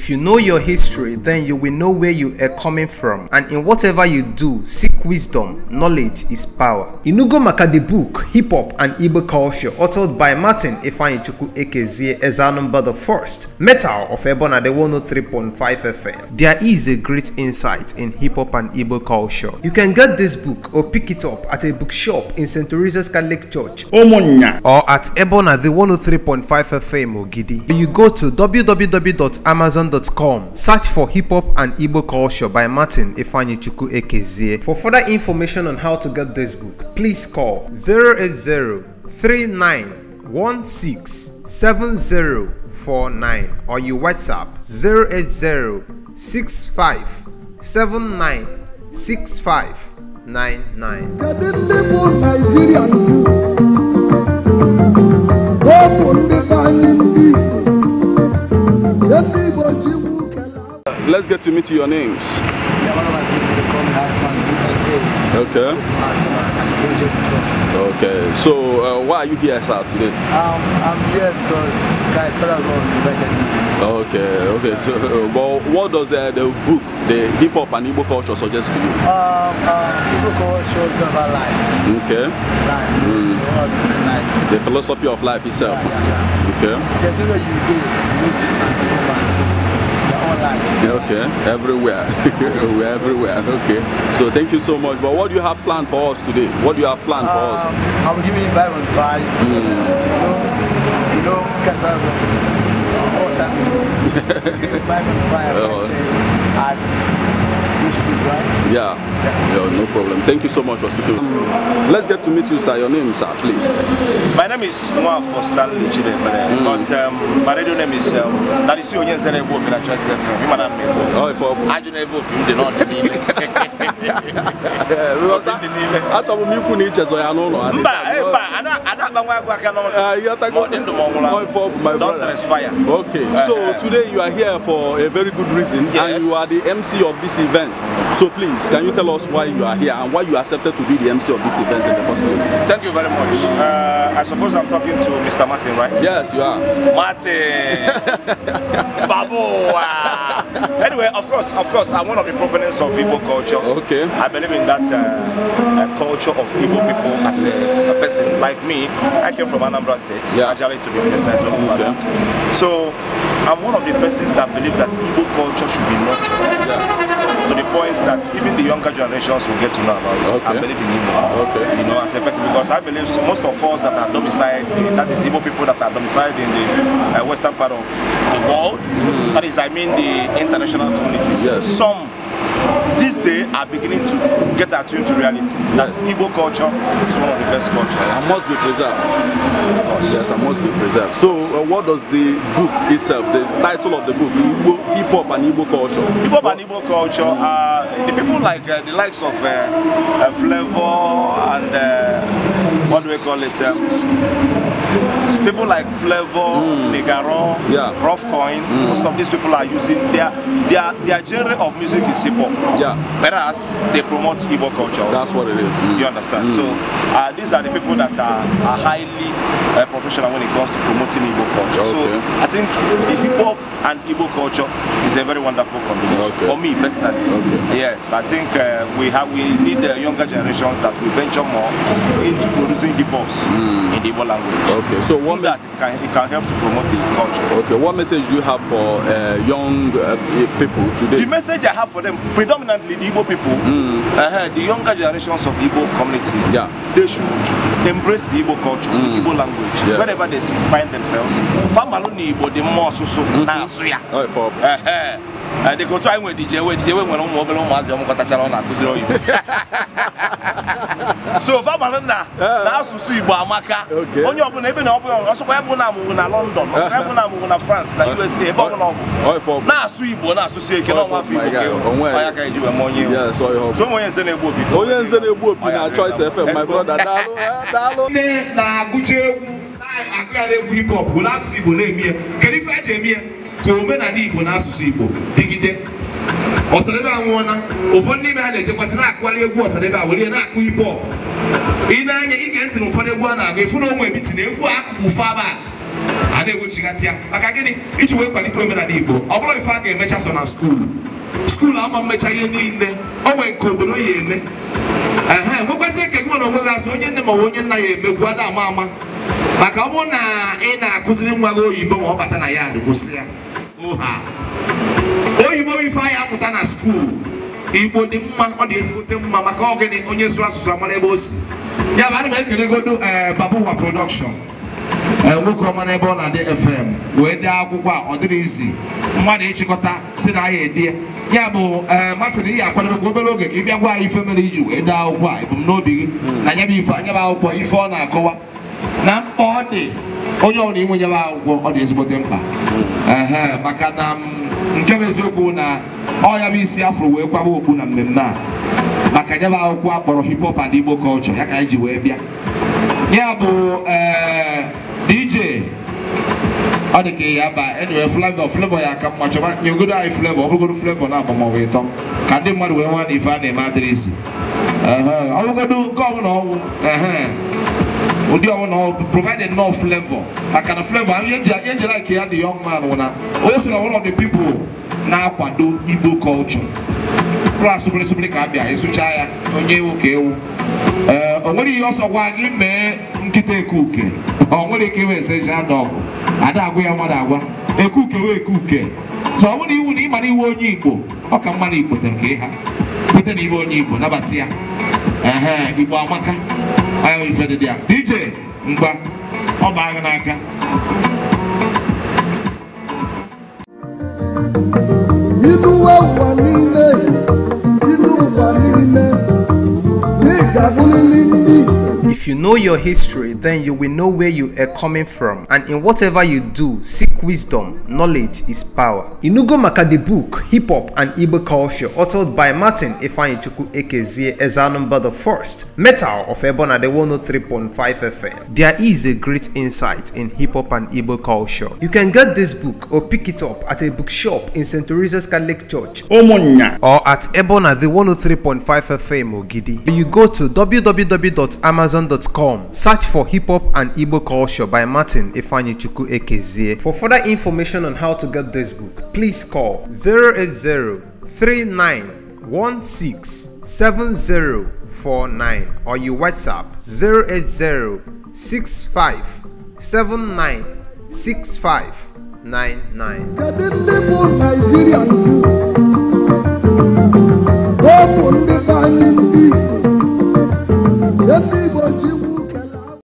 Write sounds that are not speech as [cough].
If you know your history, then you will know where you are coming from. And in whatever you do, seek wisdom. Knowledge is power. Inugo Maka the book, Hip Hop and Igbo Culture, authored by Martin Ifanichuku Ekezie Ezanumba the First, Metal of Ebona the 103.5 FM. There is a great insight in hip hop and Igbo culture. You can get this book or pick it up at a bookshop in St. Teresa's Catholic Church Omonya. or at Ebona the 103.5 FM Ogidi. You go to www.amazon.com Search for Hip Hop and Igbo Culture by Martin Ifanyichuku Ekezie. For further information on how to get this book, please call 080 39167049 or your WhatsApp 080 65 79 65 99. Let's get to meet your names. Yeah, one of my people, they call me Hypeman Okay. Okay, so uh, why are you here sir, today? Um, I'm here because Sky's Federal Government Okay, okay, so uh, well, what does uh, the book, the hip hop and Igbo culture suggest to you? Um, uh, Igbo culture is about life. Okay. Life. Mm. The philosophy of life itself. Yeah, yeah, yeah. Okay. The you do, you see, and you life. Okay, everywhere. [laughs] We're everywhere. Okay. So thank you so much. But what do you have planned for us today? What do you have planned um, for us? Um, I will give you Byron vibe. Mm. You know, you know, Scott Byron. All time is. Byron vibe. Oh. At food, right? Yeah. yeah. yeah. no problem. Thank you so much for speaking. Um, let's get to meet you, sir. Your name, sir, please. My name is Mwa for Stanley mm. but um, my radio name is um, that is you, yes, and I will be a choice. Oh, for um, I don't know if you not need [laughs] it. Because I'm the name. I thought we could need just I don't know. Ada ada bangwa kwa kama uh, you are talking more for my Don't brother. Transpire. Okay. Eh. so uh, today you are here for a very good reason yes. and you are the MC of this event. So please, can you tell us why you are here and why you accepted to be the MC of this event in the first place? Thank you very much. Uh, I suppose I'm talking to Mr. Martin, right? Yes, you are. Martin. [laughs] Babu. anyway, of course, of course, I'm one of the proponents of Igbo culture. Okay. I believe in that uh, uh culture of Igbo people as a, a person like like me, I came from Anambra State, yeah. Ajali to be Okay. So I'm one of the persons that believe that Igbo culture should be nurtured. Yes. To the point that even the younger generations will get to know about it. Okay. I believe in Igbo. Okay. You know, as a person, because I believe most of us that are domiciled, that is Igbo people that are domiciled in the uh, western part of the world, mm. that is, I mean, the international communities. Yes. Some this day are beginning to get attuned to reality. That yes. Igbo culture is one of the best culture. And must be preserved. Of course. Yes, and must be preserved. So, uh, what does the book itself, the title of the book, Igbo, Hip Hop and Igbo Culture? Hip Hop and Igbo Culture are uh, the people like uh, the likes of uh, uh, Flavor and uh, what do we call it? Um, people like Flavor, mm. Negaron, yeah. Rough Coin, mm. most of these people are using their their their genre of music is hip hop. Yeah. Whereas they promote Igbo culture. That's what it is. Mm. You understand? Mm. So uh, these are the people that are, are highly uh, professional when it comes to promoting Igbo culture. Okay. So I think the hip hop and Igbo culture is a very wonderful combination okay. for me personally. Okay. Yes, I think uh, we have we need the younger generations that we venture more into using the bombs mm. in the Igbo language. Okay, so what that it can, it can help to promote the culture. Okay, what message do you have for uh, young uh, people today? The message I have for them, predominantly the Igbo people, mm. uh, the younger generations of the Igbo community, yeah. they should embrace the Igbo culture, mm. the Igbo language, yes. wherever they find themselves. Famaloni Igbo, the more so so, na asuya. Oh, for. Uh, uh, dịka otu anyị nwere dije we dije we nwere ụmụ obere ụmụazị ọmụkọtachara ọ na-akụziri oyibo so fabara nna eh. na asụsụ Igbo amaka onye ọbụla ebe na ọbụla ọsọkwa ya na amụgwụ na London ọsọkwa ya na amụgwụ na France na eh. USA ebe oh, ọbụla ọbụ oh, na-asụ Igbo na-asụsị eke na ọnwa oh, afọ Igbo ka e ya ka eji wee ma onye onye nze na-egbu opi onye nze na-egbu opi na Choice FM my brother daalụ eh, daalụ nne na-agụcha egwu na-agụghara egwu hip hop bụ n'asụsụ Igbo na-eme ya kedu ife a ji eme ya ka omenala Igbo na asụsụ Igbo dịgide ọsadebe na ụfọdụ n'ime ha na-ejekwasị na-akụgharị egwu ọsadebe a were na-akụ hip hop ị na-anya ị ntị na ụfọdụ egwu a na-agụ ịfụ na onwe ebiti na egwu akụkụ aba a na-egbochighatị ya maka gịnị iji wee kwalite omenala Igbo ọ bụrụ ife a ga-emecha so na skuulu skuulu ama mmecha ihe niile ọ nwee nke obodo ya eme ehe nwekwazị eke gị nwere onwe gị azụ onye nne ma ọ bụ onye nna ya emegbu ada ama ama maka ọ bụrụ na ị e na-akụziri nwa gị oyibo ma ọ bata na ya kwụsị ya oha onwe ife anyị apụta na skuul igbo dị mma ọ dị ezigbote mma maka ogene onye zụrụ asụsụ amara ebe o si ya bụ anyị m ekelegodo ee babuwa production e, nwoke ọma n'ebe ọ na-adị fm wee dee akwụkwọ a ọ dịrị izi mmadụ ịchịkọta si na ahịa edie ya bụ e, ị ihe akwadobe obere oge ka ị bịa gwa anyị ife mere iji wee dee akwụkwọ a ebumnobi gị na nyebe ife anyebe akwụkwọ ife ọ na-akọwa na mkpa ọ dị onye ọbụla inwe nyebe akwụkwọ ọ dị ezigbote mkpa maka na nke bụ eziokwu na ọya bụ isi afro wee kwaba okpu na mmemme a maka nyebe akwụkwọ akpọrọ hip hop and Igbo culture ya ka anyị ji wee bịa ya bụ eh, DJ ọ dị ka ya ba enwere flavọ flavọ ya aka mma chọba nyegodo anyị flavọ ọ bụgoro flavọ na-agba maọbụ ịtọ ka ndị mmadụ wee nwa na ife a na-eme adịrịsị ọ bụgodo nke ọbụla ọnwụ ndị ọwụna provided no flavor maka na flavor ihe njela nke ya dị young man wụna o si na one of the na-akwado igbo culture plas bụrịsịbụrị ka abịa ịsụcha ya onye ewu ka ewu ee eh, o nwere ihe ọsọ gwa gị mee nkịta ekuke [laughs] o nwere ike iwe ese ji ada ọgwụ ada agwa ya mmadụ agwa ekuke wee ekuke so ọ bụrụ iwu na ịma na iwe onye igbo ọ ka mma na igbo tere ka ịha na iwe onye igbo nabata ya ehe igbo amaka ahụ ife dị ya DJ mkpa ọ bụ n'aka wa wà you know your history, then you will know where you are coming from. And in whatever you do, seek wisdom. Knowledge is power. Inugo Maka the book, Hip Hop and Igbo Culture, authored by Martin Ifanichuku Ekezie Ezanumba the First, Metal of Ebona the 103.5 FM. There is a great insight in hip hop and Igbo culture. You can get this book or pick it up at a bookshop in St. Teresa's Catholic Church Omonya. or at Ebona the 103.5 FM Ogidi. You go to www.amazon.com youtube.com. Search for Hip Hop and Igbo Culture by Martin Ifanyichuku Ekezie. For further information on how to get this book, please call 080 39167049 or you WhatsApp 08065796599. Kedu ndị bụ Naịjirịa bụ bụ ndị be anyị ndị